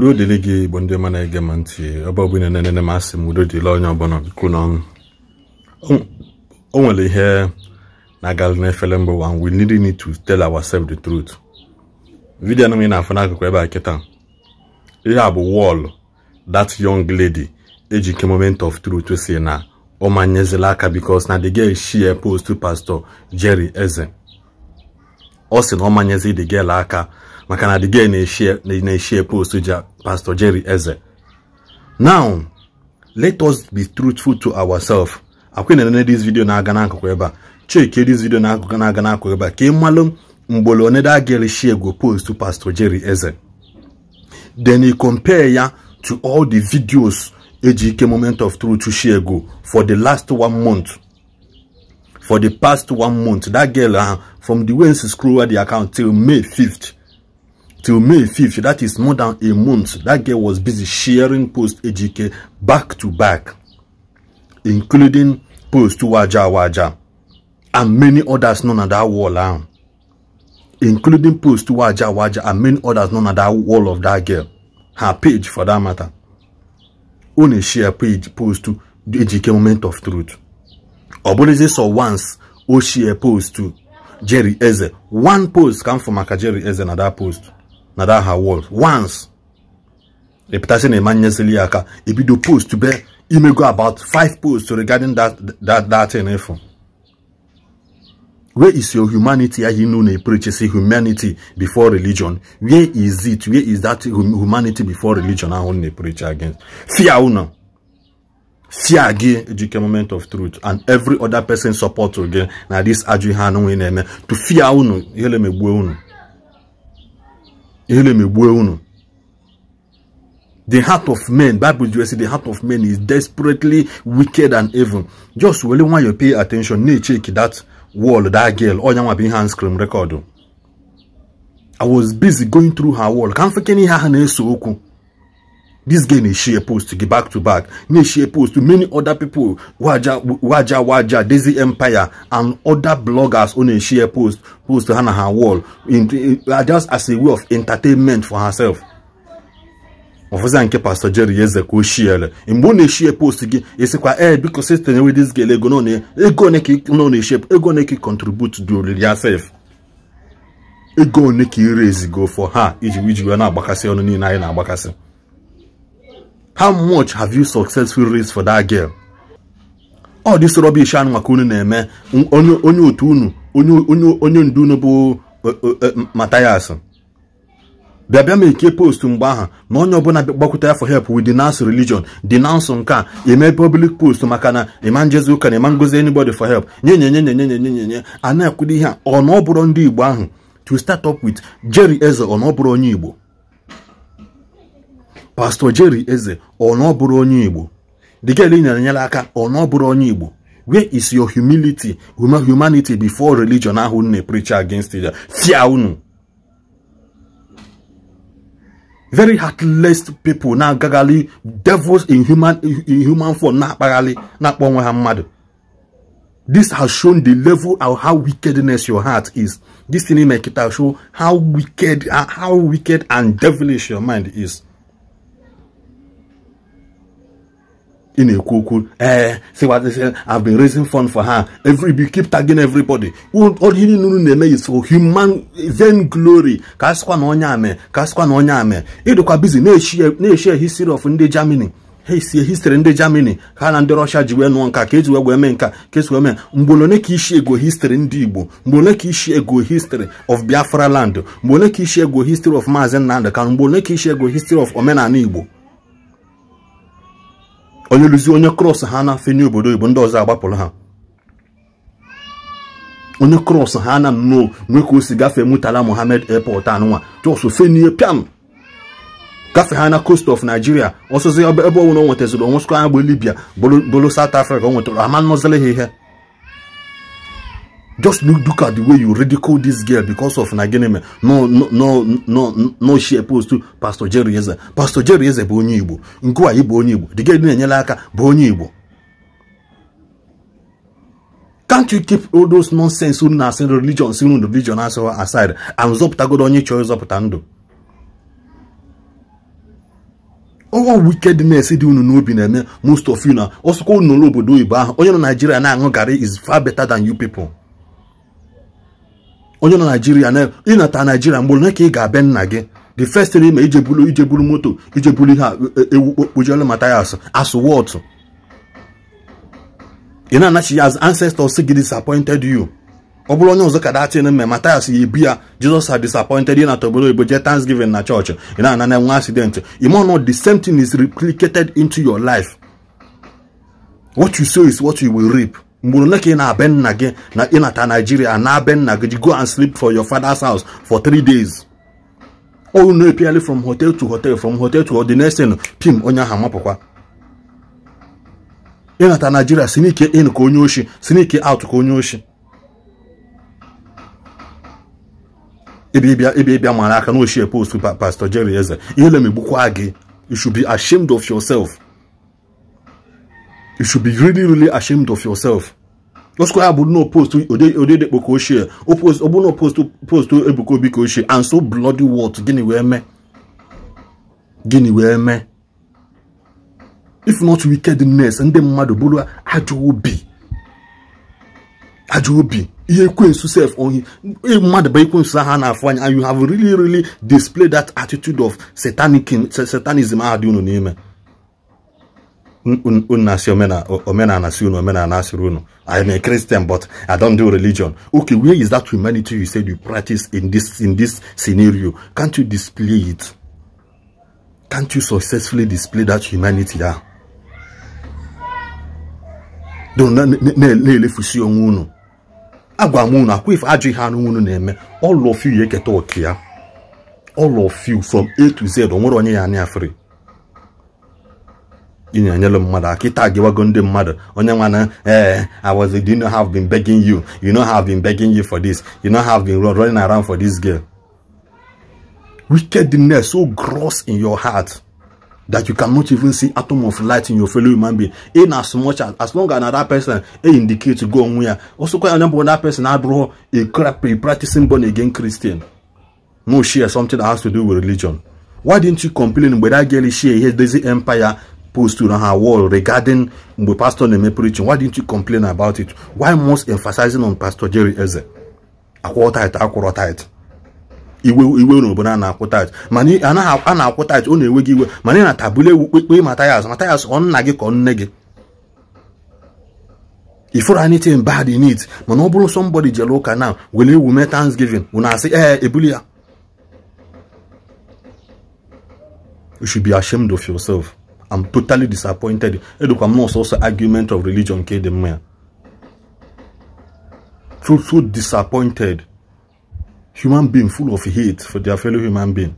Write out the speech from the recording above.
udo dịrị gị igbo ndị ma ege m ntị ebe ọbụla na-enene m asị m udo dịrị onye ọbụla biko n'ọnụ o nwere ihe na-agalụ n'efere mbụ wa we really need to tell ourselves the truth vidiyo anụ na-afụ n'akụkụ ebe a kịta ihe a bụ wọl that young lady ejike moment of truth si na ọ ọmanyezila aka because na the girl share post pastor jerry eze ọ sị na ọ manyezi the girl aka maka na the girl na-eshie post ja Pastor Jerry Eze. Now, let us be truthful to ourselves. Akwe na this video na aga n'akụkụ ebe a. Chike this video na akụkụ na aga n'akụkụ ebe a. Ka ịmalụ mgbolo onye da gere share go post to Pastor Jerry Eze. Then he compare ya to all the videos Ejike Moment of Truth share go for the last one month. For the past one month, that girl, uh, from the way e she scrolled the account till May 5th, till May 5th. That is more than a month. That girl was busy sharing post AGK back to back, including post to Waja Waja and many others None of that wall now, ah. including post to Waja Waja and many others None of that wall of that girl, her page for that matter. Only share page post to the AGK moment of truth. Obolize saw once, o share post to Jerry Eze. One post come from Maka Jerry Eze na that post. That her Walls once reputation emanyesili aka ebido post to be imego about five posts regarding that that that thing if eh, where is your humanity ahi no na preaches humanity before religion where is it where is that humanity before religion ahụ na preach against fear una fear again. ejike moment of truth and every other person support again. na this ajụ ihe anụ na to fear unu ihe me emegbuo unu Ile megbue unu. The heart of men, Bible says the heart of men is desperately wicked and evil. Just really want you pay attention. Need check that wall, that girl. Oh, nyanwa bin hand scream record. I was busy going through her wall. Can't forget ni ha na-eso okwu. This girl na share post get back to back, na share post to many other people, Waja Waja Waja, Daisy Empire, and other bloggers on a share post post to her Hannah her wall, in, in, uh, just as a way of entertainment for herself. ọfụza nke pastor jerry eze ka o shiele mgbe ọ na-eshie post gị esikwa ee eh, biko sistem ewe dis gel ego ego one ka nọ na-eshie ego one ka contribute do ya sef ego one ka ire ezigo for ha iji iji wee na-agbakasị ọnụ niile anyị na-agbakasị how much have you successfully raised for that girl ọ this rubbish anụ maka unu na-eme onye otu unu onye ndu unu bụ e- e- e- matayas bịa bịa ma eke post mgbe ahụ na onye ọbụla gbakwute ya for help with denounce religion denounce nke a eme public post maka na ịma njezi ụka na ịma ngozi anybody for help nye nye nye nye nye nye nye nye a na-ekwudo ihe a ọ na ọ bụrụ ndị Igbo ahụ to start up with Jerry Eze ọ na ọ bụrụ onye Igbo pastọ Jerry Eze ọ onye Igbo nyere aka ọ bụrụ onye Igbo where is your humility humanity before religion ahụ na preach against it fia unu very heartless people na-agagharị devils in human in form na-akpagharị na-akpọ onwe ha mmadụ this has shown the level of how wickedness your heart is this thing show how wicked how wicked and devilish your mind is ị na-ekwu okwu eh, ee sịwazịsị I've been raising fund for her every be keep tagging everybody ihe niile unu na-eme is for human then glory ka a sịkwa na onye ame ka a sịkwa na onye ame ịdịkwa bizi na-eshi history of ndị Germany ha esie history ndị Germany ha na ndị Russia ji wee nụọ nka ka eji wee mee nka ka esi wee mee mgbe ole ka ishi ego history ndị Igbo mgbe ole ka ishi ego history of Biafra land mgbe ole ka ishi ego history of Maazị Nnamdị Kanụ mgbe ole ka ishi ego history of omenala Igbo onye lụzi onye krọs ha na-afe nye obodo oyibo ndị ọzọ agbapụrụ ha onye krọs ha na nnọọ nwee ka o si gafee mutala mohammed airport anụnwa jos fenie pian gafee ha na coast of nigeria ọsụzi ebe ọbụla o nwetaziri anya agba libya bụrụ south africa o nwetara ama nnọzile ha ihe just look, look at the way you ridicule this girl because of Naginime. No, no, no, no, no, she opposed to Pastor Jerry Eze. Pastor Jerry Eze bụ onye Igbo. Nkua Igbo onye Igbo. The girl na-enyela aka bụ onye Igbo. Can't you keep all those nonsense on na religion si unu religion aside and zọpụtagodo onye chọrọ ịzọpụta ndụ? owo wickedness dị unu n'obi na-eme most of you na ọsụkwa unu n'obodo oyibo ahụ onye nọ Naijiria na-aṅụ garị is far better than you people. onye nọ naijiria na ịnata naijiria mgbe ole ka ị ga-abịa nna gị the first thing ma ije bulu ije bulu moto ije bulu ihe ewu kpojelu ma tires asụ wọtụ ị na-anachi ya as ancestors gị disappointed you ọ bụrụ onye ọzọ ka datin mme Matthias ya ebi ya Jesus had disappointed na tobodo oyibo jee Thanksgiving na chọọchị ị na-ana na nwa accident ịmọnọ the same thing is replicated into your life what you sow is what you will reap mgburu ole ka ị na-abe nna gị na ịnata naijiria na-abe nna gị go and sleep for your father's house for three days unu epiali from hotel to hotel from hotel to the next thing pim onye ahụ amapụkwa ịnata naijiria si n'ike in ka onye oshi si n'ike out ka onye oshi ebe ịbịa mara aka na ochie post pastor jerry eze ihe lemigbukwa gị you should be ashamed of yourself you should be really, really ashamed of yourself. Oscar no post to Odede Bokoshie, opposed Obuno post to post to Ebuko Bikoshie, and so bloody what? Guinea where me? Guinea where me? If not wickedness and the mother Bulu, Ajobi. Ajobi. Ihe ekwensu self on him. mmadụ bụ ekwensu ahụ a and you have really really displayed that attitude of satanic satanism do dị name. n'ime unu na-asị omenala asị unu omenala I'm a Christian but I don't do religion okay where is that humanity you said you practice in this in this scenario can't you display it can't you successfully display that humanity ah na-elefusi onwe unu agwa m unu akwa ife ajọ ihe anụ na-eme all of you ya eketa oke all of you from A to Z o nwere onye ya anya free ị na-enyere mmadụ aka ịta agịwago ndị mmadụ onye nwana ee i was do you know have been begging you you know have been begging you for this you know have been running around for this girl wickedness so gross in your heart that you cannot even see atom of light in your fellow human being in as much as as long as another person e indicate go onwe ya osokwa onye bụ another person abụrụ a practicing born again christian no share something that has to do with religion why didn't you complain mgbe that girl She ihe dozi empire post on her wall regarding mgbe pastor na-eme preaching why didn't you complain about it why most emphasizing on pastor jerry eze akwụọ tait akwụrọ tait iwe iwe obodo a na-akwụ tait mana a na-akwụ tait ọ na-enwe gị iwe mana ị na kpe ewu kpekpe matayas matayas ọ nna gị ka nne gị ifuru anything bad in it mana ọ bụrụ somebody jere ụka na wele ewu thanksgiving wụ na-asị ee eh, ebuli ya you should be ashamed of yourself I'm totally disappointed. I'm also argument of religion. So, so disappointed. Human being full of hate for their fellow human being.